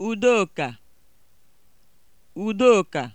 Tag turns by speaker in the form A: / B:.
A: Udoka Udoka